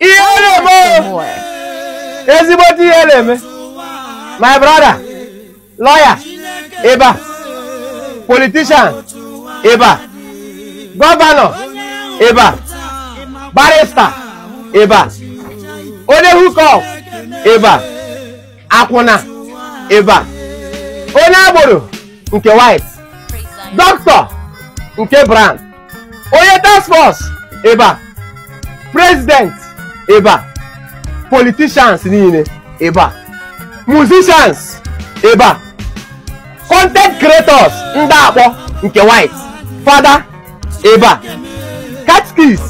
ihere mo ezigbote ihere eme my brother lawyer ịba politician ịba gọvanọ ịba barista ịba onye hukọp ịba akwụna ịba onye agboro nke white dọkịta nke brown onye task force ịba president ebe a politicians niile ebe a musicians ebe a content creators ndị akpọ nke white fada ebe a catkis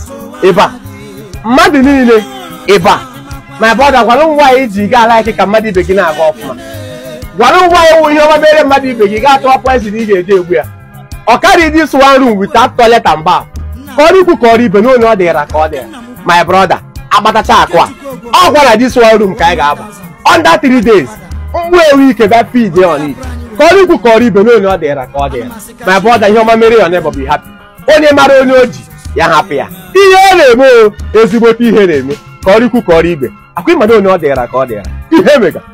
ebe a mmadụ niile ebe a my brother gwara m nwaanyị ji gaa alaiki ka mmadụ ibe gị na-aga ọfụma gwara m nwaanyị wụ ihe ọma mere mmadụ ibe gị gaa tụọ poison ị ga-eji egbu ya ọ karịghị this one room wit toilet and bath ka ikwu ka ọrụ ibe n'onu ọ dịra ka ọ dịra my brother agbatacha akụ a ọ gwara dis one room ka anyị ga-agba under three days mkpu ewu ike bịa pid on ka ọrụ ikwu ka ọrụ ibe n'onye ọ dịra ka ọ dịra ma bụ ọda ihe ọma mere on bụ hapi onye mara onye o ji ya hapụ ya ihe ọ na-eme o ezigbote ihe na-eme ka ọrụ ikwu ka ọrụ ibe akwa ịmado onye ọ dịra ka ọ dịra ihe mega